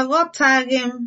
Aghọtaghị m.